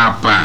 apa